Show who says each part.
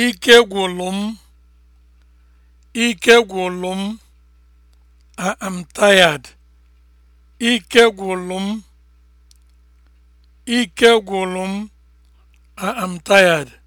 Speaker 1: Ike gwụrụ m, ike m, m, ike m, I am tired.